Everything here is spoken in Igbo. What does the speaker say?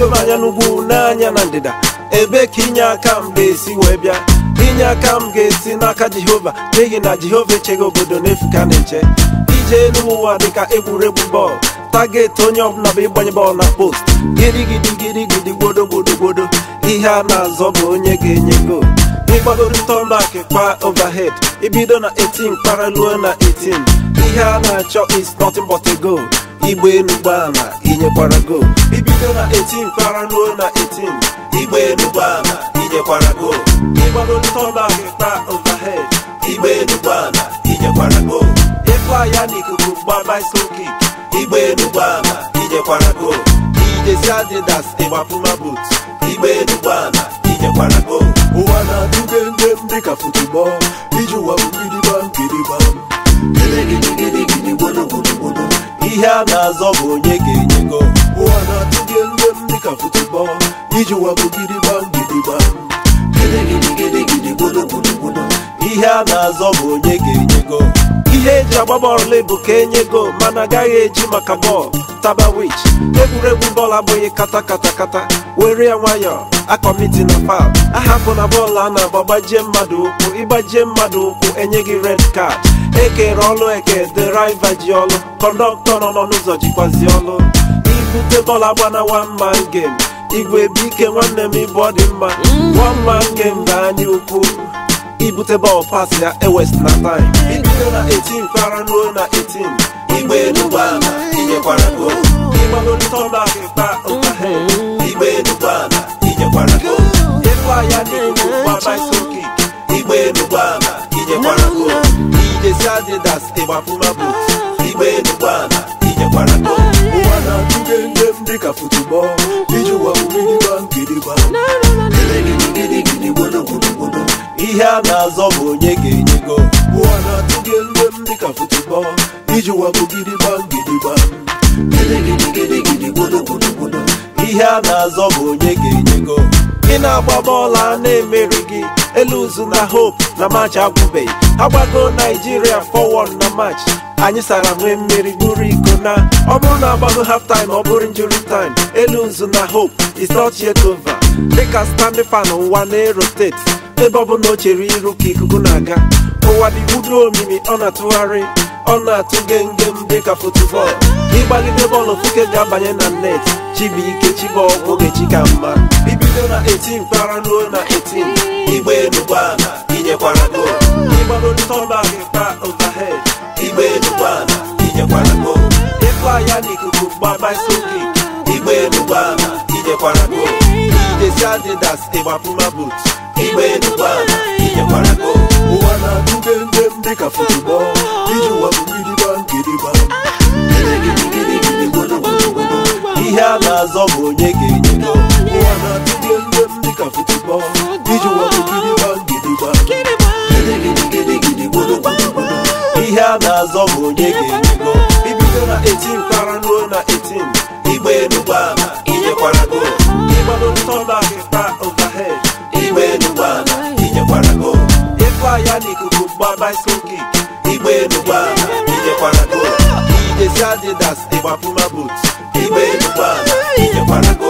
ego m n'ugwu n'anya na ndịda ebe ka inye aka m ga-esi wee bịa inye aka m ga-esi n'aka jehova n'ihi na jehova echeghị obodo n'efu ka na-eche ije n'ụwa dịka egwuregwu bọọlụ taget onye ọbụla bụ ịgbanye bọọlụ na post girigidi girigidi gbodo ihe a na-azọ bụ onye ga-enye gol ịgbagorịta ọnụakụ kwa overhead ibido na 18 kpara ruo na 18 ihe a na-achọ is nothing but a goal igbe elu gbaa inyekwara goal site na 18 para ruo na 18 igba elu gbana inyekwara go ịgbado ntọla ta overhead igba elu gbana inyekwara go ịkwa ya na ikuku gba bicycle kick igba elu gbana inyekwara go ijesi adidas ịgbapuma boot igba elu gbana inyekwara go ụwa na-atụge ndị m dịka futubọl iji ụwa bụ gidigba gidigba ihe a na-azọ bụ onye ga-enye go ụwa na-atụ nne m dịka futubọ iji wabụ gidigbam gidigbam ihe a na-azọ bụ onye ga ihe eji agba bọọlụ bụ ka enyego mana agaghị eji maka bọọlụ taba wich egwuregwu bọọlụ abụghị kata kata kata were ya nwayọọ akọmiti na pap ahapụ na bọọlụ a na-agba gbajie mmadụ ụkwụ ịgbajie mmadụ ụkwụ enye gị red card ekere ọlụ eke dịraiva ji ọlụ kọndọktọ nọ n'ụzọ jikwazi ọlụ ibute dọla gbana one man game igwe bike nwanne m ịbụ ọ mma one man game bụ anya ukwu ibute bọl pas ya ewest na time ibido na 18 kara ruo na 18 igbe enugbaala inyekwara go ịgbalolitọbak pa nkahe igbe enugbaala inyekwara go ịkwa ya n'igwu kwa bicycle kick igbe enugbaala inyekwara go ijesi adidas ịgbapụma boot igbe enugbaala inyekwara go Africa football. Iju wa kubidi bang kidi bang. Kele gidi gidi gidi bodo bodo bodo. Ihe a na-azọ bụ onye ga-enye go. Ụwa na-atụ gị elue m dịka football. Iju wa kubidi bang kidi bang. Kele gidi gidi gidi bodo bodo bodo. Ihe a na-azọ bụ onye ga-enye go. Ị na-agba bọọlụ a na-emeri gị. eluzu na hope na match agwụbeghị agbago naijiria 4-1 na match anyị sara nwee mmeri buru iko na ọ bụrụ na agbago half time ọ bụrụ injury time eluzu na hope is not yet over dịka standing fan ụwa na-erotate ebe ọ bụ na o chere iru ka ikuku na-aga ụwa dị budo omimi ọ na-atụgharị ọ na-atụ gengem dịka futubọọlụ ịgbagide bọọlụ fuke ga-abanye na net chibuike chiba ọgwụ oge chi ka mma bibido na 18 para ruo na 18 igbe enugwu ana inyekwara gol ịgbalụ ndị ọla gị pa overhead igbe enugwu ana inyekwara gol ịkwa ya n'ikuku gbaba isi kik igbe enugwu ana inyekwara gol Ijesi adidas ịgbapụ ịgbapụma but igbe enugwu ana inyekwara gol ụwa na-adụbe ndị dị ka futubọl iji ụwa bụ mmiri gbangịrịgba ihe a na-azọ bụ onye ga-enye gol ka football ijiwọụ gidigba gidigba gidigidi gburugburu ihe a na-azọ bụ onye ga-enigo eji ibido na 18 kpara ruo na 18 igba enugbana inyekwara go Ịgbado ntọ na-agakwara ịgbadotọnakịta overhead igba enugbana inyekwara go ịkwa ya n'ikuku gba bicycle kick igba enugbana inyekwara go ijesi adidas ịgbapụma boots igba enugbana inyekwara go